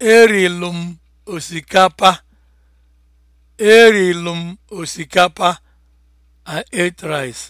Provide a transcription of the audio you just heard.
Erilu m osikapa. Erilu m osikapa. a ate